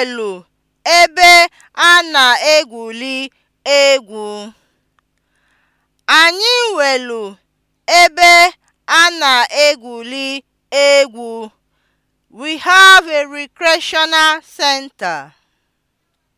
pọọlụ ebe a na-egwuri egwu. Anyị nwere ebe a na egwuli egwu. We have a recreational center.